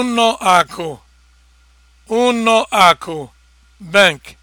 Uno akụ ụnọ aku bank